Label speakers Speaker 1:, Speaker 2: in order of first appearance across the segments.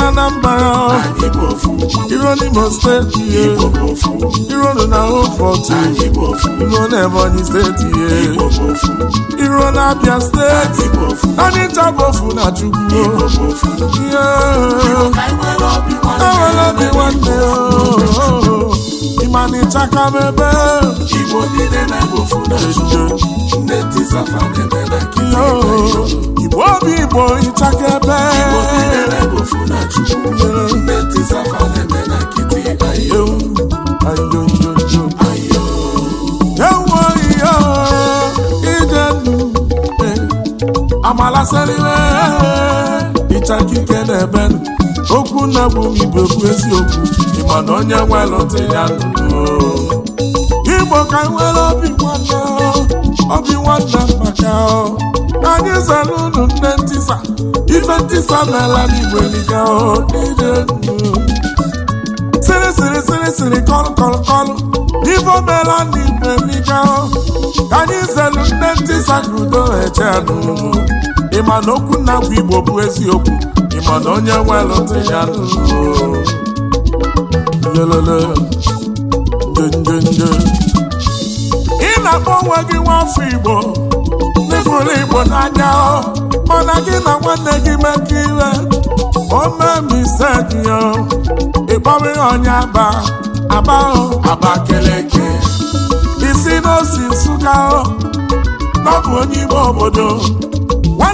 Speaker 1: na mba. iro n'Imo steeti ihe iro nọ na Hofort iro na Ebonyi steeti ihe iro na Abia steeti anyị tabofu na Chukwu ihe nwere obi nwanne ịma na ịchaka na ebe na okwu nna bụ igbo bụ eziokwu ịma na onye nwelụtụ ya nụrụ igbo ka nwere obi nwanna obi nwanna maka anyị zara unu nne ntịsa. ife ntịsa ntisa n'ala n'igbo eliga sịrị sịrị sịrị sịrị kọlụ kọlụ kọlụ ife omela n'igbo eliga ka anyị zelu nne ntịsa ka udo eje n'ụlọ ịma na okwu nna bụ igbo bụ eziokwu ịmana onye nwelụ ndị ya lele njenjenje ị na-akpọ onwe gị nwafọ Igbo n'ịfụrụ Igbo n'anya mana gị na nwanne gị mekọ ire omemisegiya ịkpọrọ ihe onye aba aba abakeleke isi n'osi Nsụka ọ bụ onye ime obodo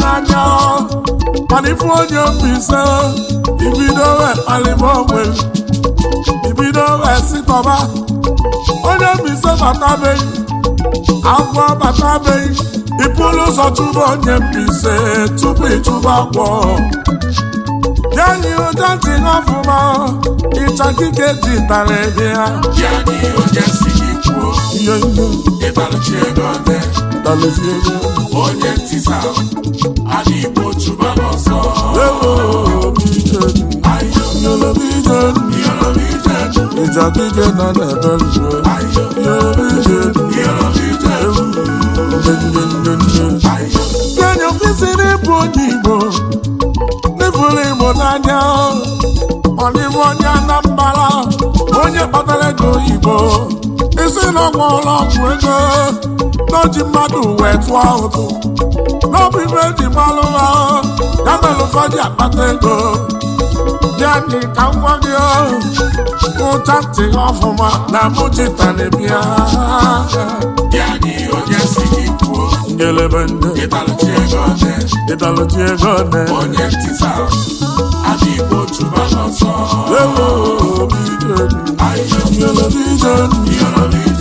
Speaker 1: n'anya mana ifu onye mbise ibido wee kpalịba onwe ibido wee sitọba onye mbise batabeghị agwọ batabeghị ịpụrụ ụzọ chụba onye mbise tupu ịchụba agwọ yanyi ụja ntị n'ọfụma ịcha kike ji tara ebe ha mezie onye igbo ebe igbo onye onye kpatara ego oyibo isi na ọgwụ ụlọ ọgwụ ego n'oji mmadụ wee tụọ ụtụ n'ọbụ ibe eji gbalụ ha ya mere ụfọdụ akpata ego ya dị ka nwa gị ụcha ntị ọfụma na mụchita na-ebia ngelebe ndị ne onye ntịsa adị igbo chụba n'ọsọ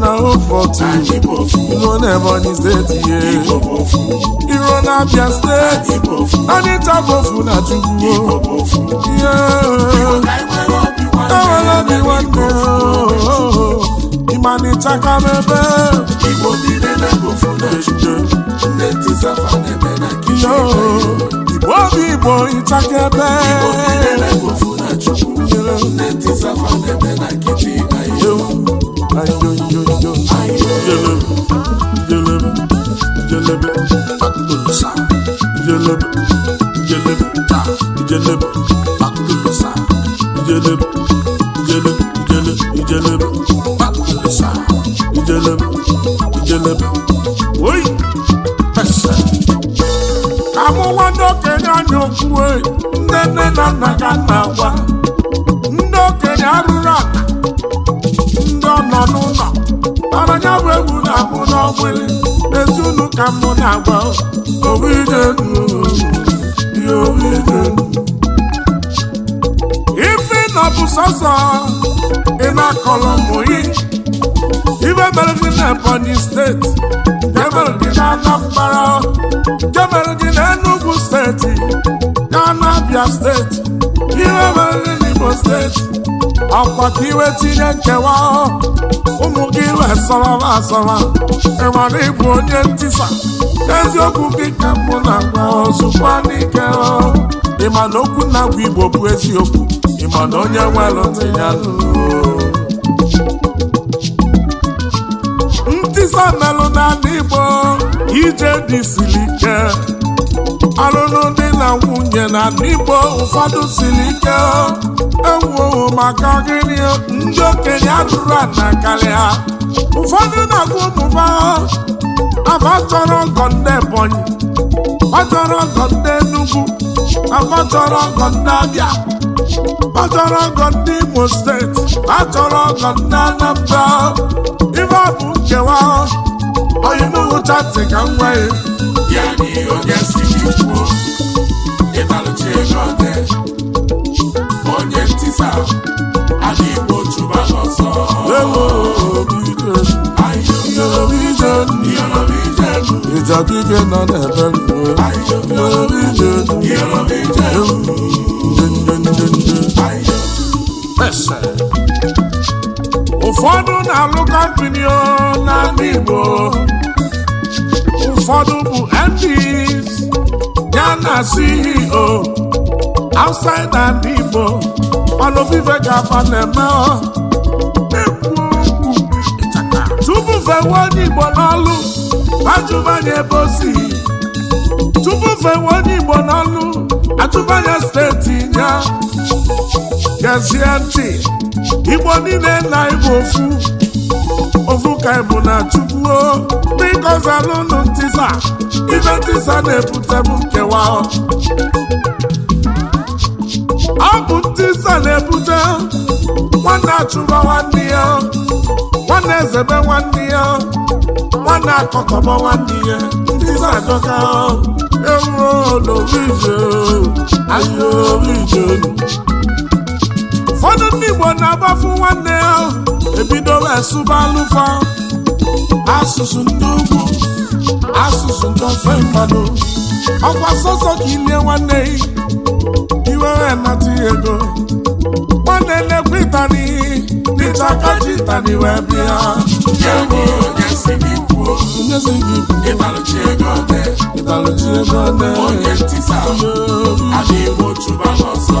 Speaker 1: na Ofortu Iro na Ebonyi steeti ye Iro na Abia steeti Anita bofu na Chukwu Ewele obi nwanne Ịmanịcha ka m ebe Igbo niile na-ebofu na-ejide Nne tisafa na-eme na kichin obi igbo ịchakebe ewu amụwa ndị okenye anya okwu nne nne na nna ga na-agwa ọgbụlị ezunu ka m na-agba ife na ọ bụ sọsọ ị na-akọlọ mụyi ibe mere gị na Ebonyi steeti jemere gị na Anambra jemere gị na Enugwu steeti na Abia steeti ibe mere gị na Imo steeti akwa ka iwe tinye nkewa ụmụ gị wee sọrọba asọrọ ịmara ịbụ onye ntisa eziokwu gị ka mụ na-agwa ozugbo n'ike ịma na okwu na-agwa igbo bụ eziokwu ịma na onye nwere dị ya ntisa melụ n'ala igbo ije dị siri ike ọlụlụ dị na nwunye na n'igbo ụfọdụ siri ike ewuowo maka gịnị ndị okenye atụrụ ana karịa ụfọdụ na-agụ ụmụba afa chọrọ ọgọ ndị ebonyi ọchọrọ ọgọ ndị enugwu achọrọ ọgọ ndị abịa achọrọ ọgọ ndị imo steeti achọrọ ọgọ ndị anambra ife ọ bụ nkewa oyinugwu chati ka m nwee onye ego onye ntisa igbo ụfọdụ na-alụ kọmpini na ndị Igbo ụfọdụ Chiefs ya na CEO outside and Igbo ọnụ vive ga-aba na-eme tupu fewe onye Igbo n'ọlụ ajụmanya ebe o si tupu fewe onye Igbo n'ọlụ ajụmanya steeti ya gezie ntị Igbo niile na Igbo ofu ovuka ebu na chukwuo biko zalụnụ ntisa ibe ntisa na-ebutebu ebute nkewa ọ bụ ntisa na-ebute nwanne achụba nwanne ya nwanne ezebe nwanne ya nwanne akọkọba nwanne ya ntisa adọka ewuo n'orije ahịa orije ụfọdụ ndị Igbo na-agbafu nwanne ya ebidola esuba alufa asụsụ ndị ugwu asụsụ ndị ofe mmanụ ọkwa sọsọ ka ilie nwanne iwere nata ego nwanne na-ekwe ịtani n'ịta aka ji ịtani wee bịa onyezi gị ịtalụchi ego ọdị ego ọdị onye ntị sa adịghị otu ba n'ọsọ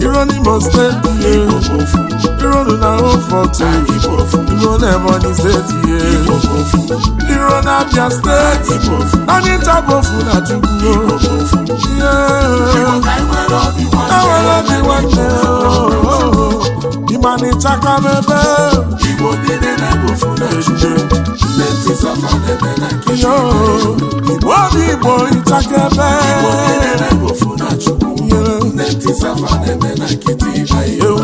Speaker 1: Iro n'Imo steeti ihe Iro nụ na Ofọte Iro n'Ebonyi ihe Iro na Abia steeti Anyị ntabofu na Chukwu Ewere obi nwanne Ịmanịchaka mebe Igbo niile na-ebofu na Chukwu Igbo obi Igbo ịchaka ebe safa na-eme ayo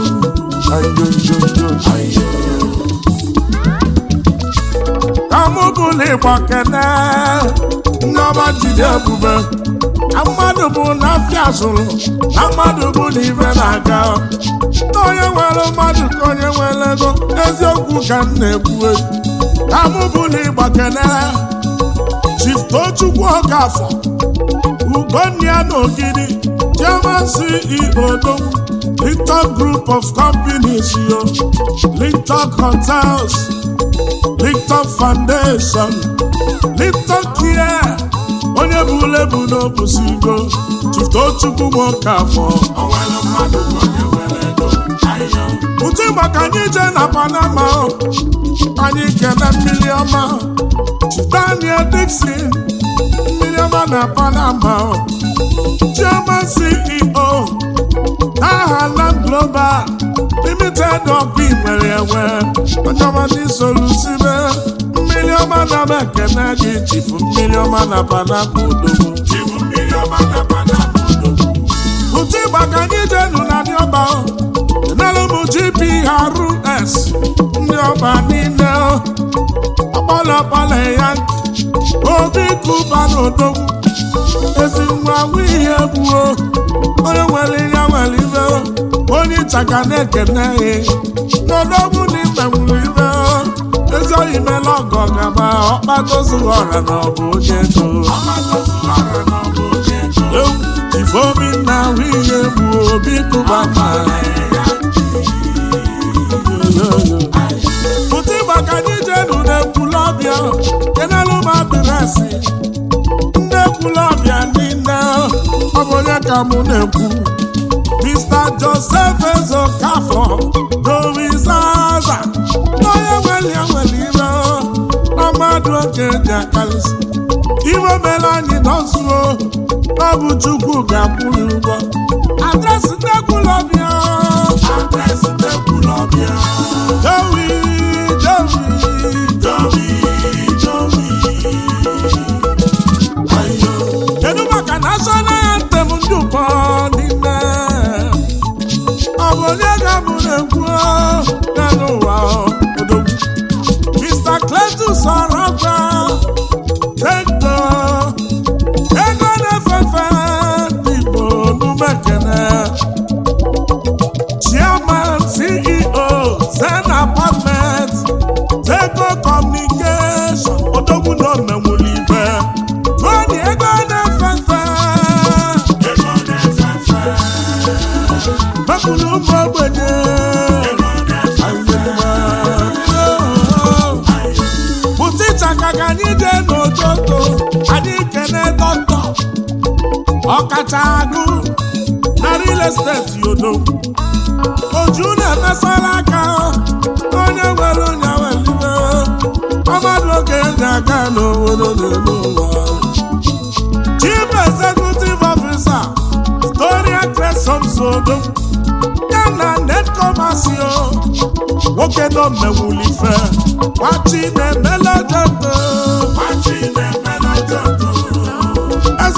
Speaker 1: mmadụ bụ na zụrụ na mmadụ bụ na na-aga onye nwere mmadụ ka onye nwere ego eziokwu ka m na-ekwu ka mụ bụla ịgba kene Chief Tochukwu na Ogidi Chairman CEO Dom, Linton Group of Companies, yo. Linton Hotels, Linton Foundation, Linton Care, onye bụ lebu n'obusigo Chiftochukwu nwoke afọ ụtụ maka anyị na Panama anyị kene mmiri ọma Daniel Dixon mmiri ọma na Panama chairman CEO aha Land Global limited ọkụ nwere enwe onyeọmadị solusibe mmiri ọma na mekene gị chifu mmiri ọma na panapodoo ụtụ ịgba ka anyị jenu na ọba. dịọba enelụmụ GPRS ndị ọba niile ọkpọlọkpọlọ ya obi kuba na odogwu ezi nwa awụ ihe gbuo onye nwere ihe nwere ibe onye ịchaka na-ekene n'ọdọbụ na ịta nwere ibe ezi oyi mela ọgọ gaba ọkpatozuru ọra na ọbụ onye ego ifeobi na ahụ ihe gbuo obi kụba ma pụta ịgbaka dị jenu na ekwulọbịa kenelụ ma bịrịsị ọgo ya ka mụ na-ekwu Mr. Joseph Ezokafọ dorizaza n'onye nwere ya nwere ire ọmadụ mmadụ oke ji akarịsị iwe mere anyị nọzuo ọ bụ Chukwu ga-akwụrụ ụgwọ adresị nnekwulọbịa adresị nnekwulọbịa Dewi Dewi ọ bụ onye ga-abụ na agụ na real estate yodo oju na-emesara aka onye nwere onye welibe ọmadụ oge ndị aka n'obodo n'elu ụwa chief executive officer Gloria Cresom Sodo ya na netkomasio nwoke nọ mmewulife gbachi na-emele jembe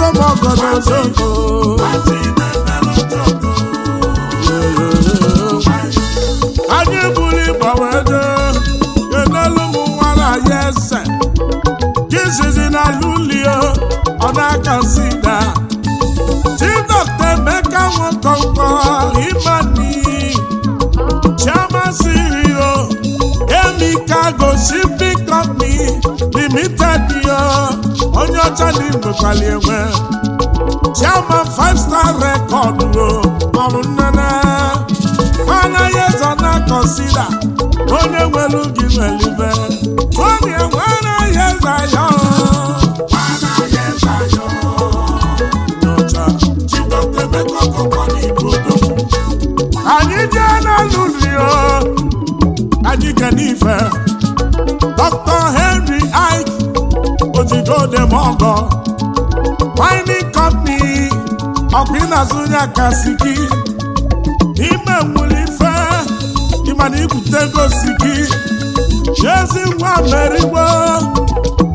Speaker 1: ogodogo anyị buru ịgbanwedo enelu ụmụ eze jizizi na lulio ọ na-aka emeka nwekọnkọ imani chioma sirio emika gosi limited yo onye ọcha na igbekwali enwe chairman five star record o maọbụ nnene anaghị eze na kọnsida onye nwere gị nwelibe onye nwe anaghị eze anya anyị jee n'alụ rio anyị kenife dr hen ọgọ Mining Company ọbinazụya gị ime nwere ife ịmana ibute gosiki chezi nwa merigbo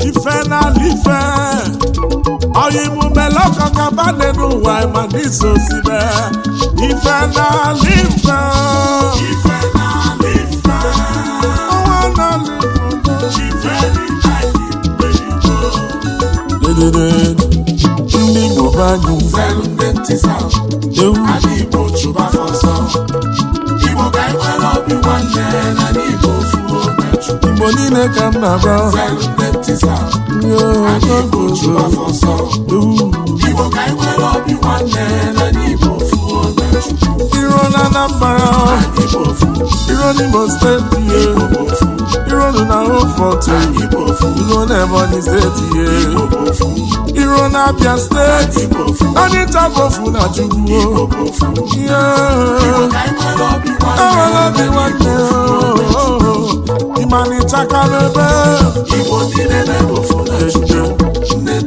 Speaker 1: ife n'ala ife oyimume lokọkabane n'ụwa ịmana iso sibe ife n'ala ife asịsa Igbo chụba Igbo ka anyị e nwere nwanne na n'Igbo Igbo niile ka m na-agba Igbo chụba Igbo ka anyị e nwere obi nwanne na n'Igbo ofuo Iro na Anambra Iro n'Imo steeti iru unu na Oforto ya na Ebonyi steeti ihe iru na Abia steeti onye nta bofu na Chukwu ihe ewere obi nwanne ịma na ịchakala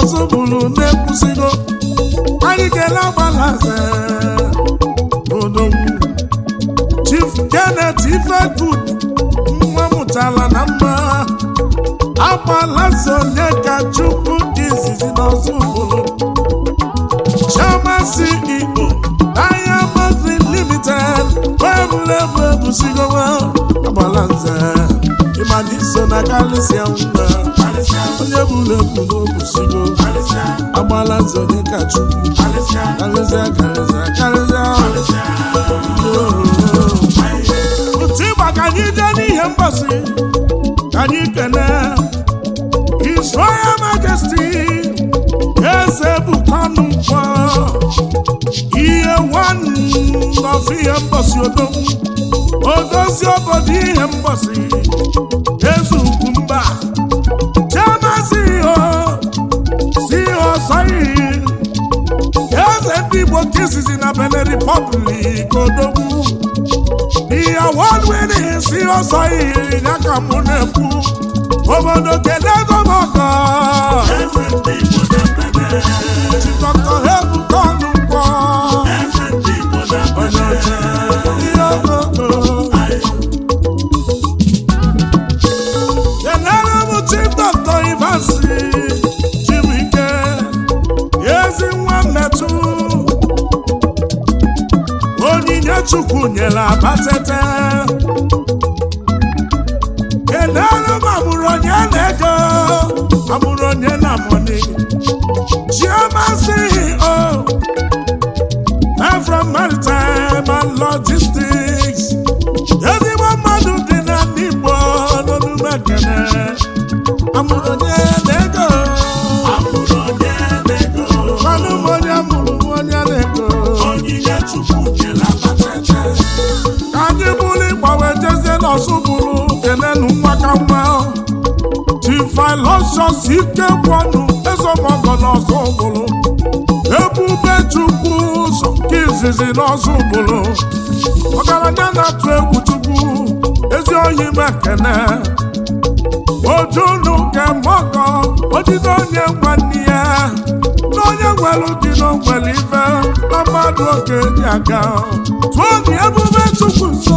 Speaker 1: ọzọ bụrụ na-ekwusigo anyị kele agbalaze odogwu Chief Janet Ifegud nwa mụtara na mma agbalaze onye ka Chukwu dị izizi n'ọzọ bụrụ Chioma si Igbo Diamond Limited weebulebe ebusigowa agbalaze ịmadị so na kalisia mba onye bụrụ ebu n'obusigo agbala nze onye ka chukwu karịzịa karịzịa karịzịa otu ịgba ka anyị jee n'ihe mgbasi ka anyị kene His majesti. Majesty eze bụkwanụ mkpọ ihe nwanọzi ihe mgbasi odogwu odozi obodo ihe mgbasi eze ugwu mba Osayi eze ndị Igbo nke izizi na Benin Republic odogwu ihe wadwere si Osayi ya ka mụ na-ekwu obodo kele ego ọzọ bụrụ kenenu nwakamma tifilosios ikekwanụ ezemọgọna ọzọ bụrụ ebube chukwu ụzọ nke izizi n'ọzọ bụrụ ọgaranya na-atụ egwu chukwu ezi oyi mekene ojunu nke mọgọ ojide onye nwanne ya na onye nwere dị n'ogwere ibe na mmadụ oge dị aga tụọ dị ebube chukwu nsọ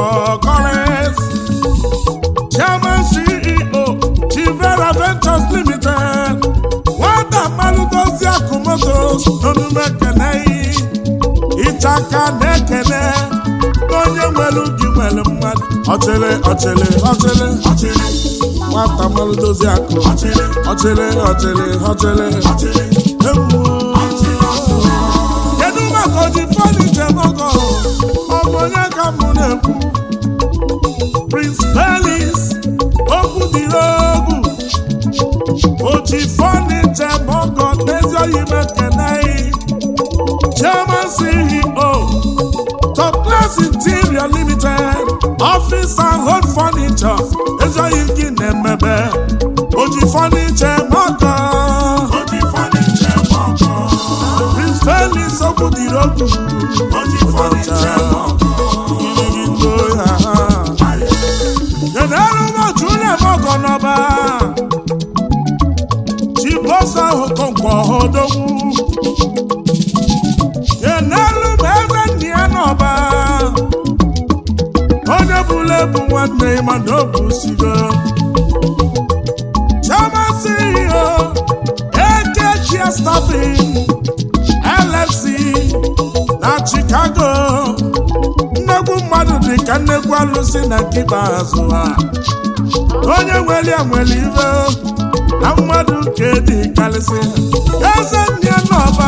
Speaker 1: aka na-ekele onye nwere ubi nwere mmadụ ọchịrị ọchịrị ọchịrị ọchịrị nwata mmanụ dozie akụ ọchịrị ọchịrị ọchịrị ọchịrị kedu maka oji fọdụ njem ọgọ ọbụ onye ka mụ na-ekwu Prince Pelis okwu oji fọdụ njem ọgọ n'ezi oyi fọniche mọkọ Prince onye nweli nwere ibe na mmadụ nke dị karịsị eze ndị n'ọba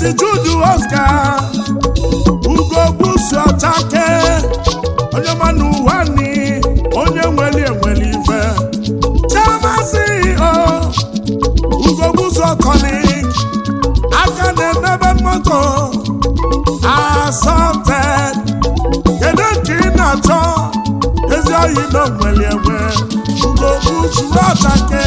Speaker 1: Maazị Jude Oscar ugogbuzuchake onye mana ụwa ni onye nweli enweli ife chemazi o ugogbuzuokoli aka na-emebe moto asọte kedu nke ị na-achọ ezi oyi na nweli enwe ugogbuzuchake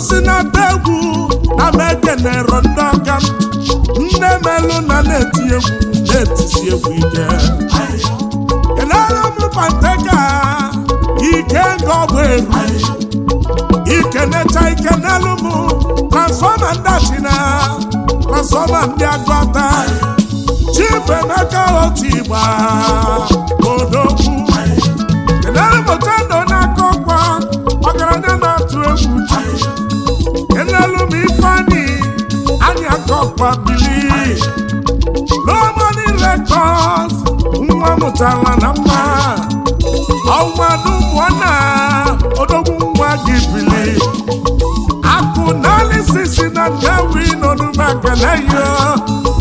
Speaker 1: si n'ata egwu na na ekenero ndị ọka m nne melụ na na-eti egwu na-etisi egwu ike kelere m ike ga ọgwụ eru ikenecha ike n'elu m transfọma ndị achina transfọma ndị agụata chifu emeka otu igba odogwu akwa bili lomoni rekọd nwa mụtara na mma ọnwadubụna odogwu nwa gị bili akụ naanị sisi na ndewi n'onumageleyo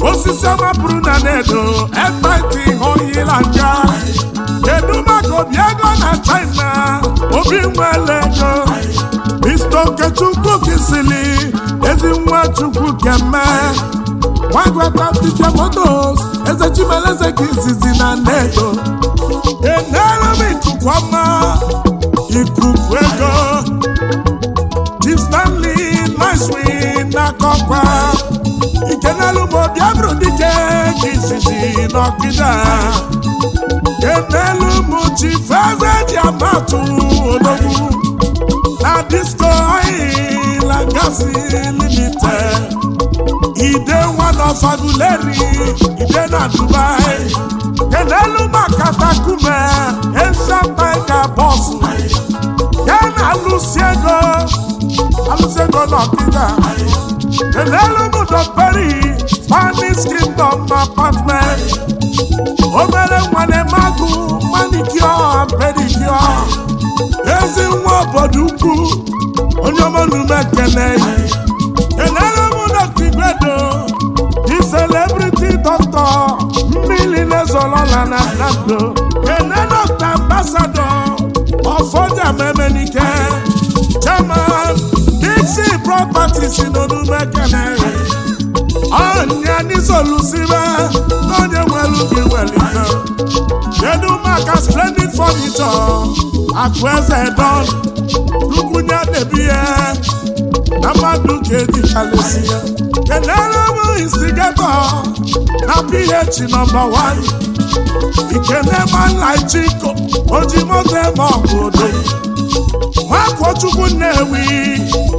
Speaker 1: osisi ọmapụrụ na nedo ekwentị hoyila nja kedu maka obi ego na china obi nwele ego Mr. Okechukwu kisili ezi nwa Chukwu keme nwagwata tifiamotos eze Chimeleze ka izizi na nnedo enere m ikukwama ikuku ego Chief na Nicewin n'akọkwa ikenelu m obi abụrụ dike ka izizi n'ọkịda enelu m Chief Eze ji amatụ odogwu disco oil and gas limited ide one of aguleri ide na dubai kenelu makatakume ensapeka bọsụ ya na alụsi ego alụsi ego n'ọkịta kenelu mụdọperi spanish kingdom apartment obere nwane magụ manicure pedicure ezi nwa obodo ukwu onye ọma n'ume ekene enere m dọkta igwedo di celebrity doctor mmiri na-ezolola na nando ene dọkta ambasado ọfọja memenike chairman dixi properties n'onume Onye ọnya n'isolusibe n'onye nwere ubi nwere ife kedu maka splendid furniture akụ eze don lukwunye na-ebi ya na mmadụ ka edichalesi ya kenere bụ instigato na ph nọmba 1 ikenemanlaijiko ojimoto eme ọbụdo nwakochukwu nnewi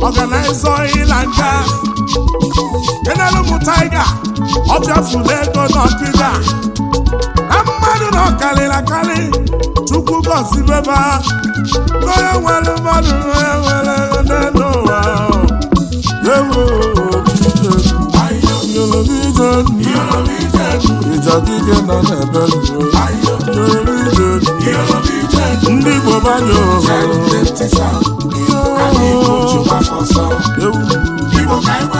Speaker 1: ọganaiza ịla enelu m taiga ọ bịafula ego n'ọkịda na mmadụ na ọkarịrị akarị chukwu gọzibeba onye nwere mmadụ onye nwere n'elu ụwa ewu na nọ n'ebe ndị Igbo banye ohere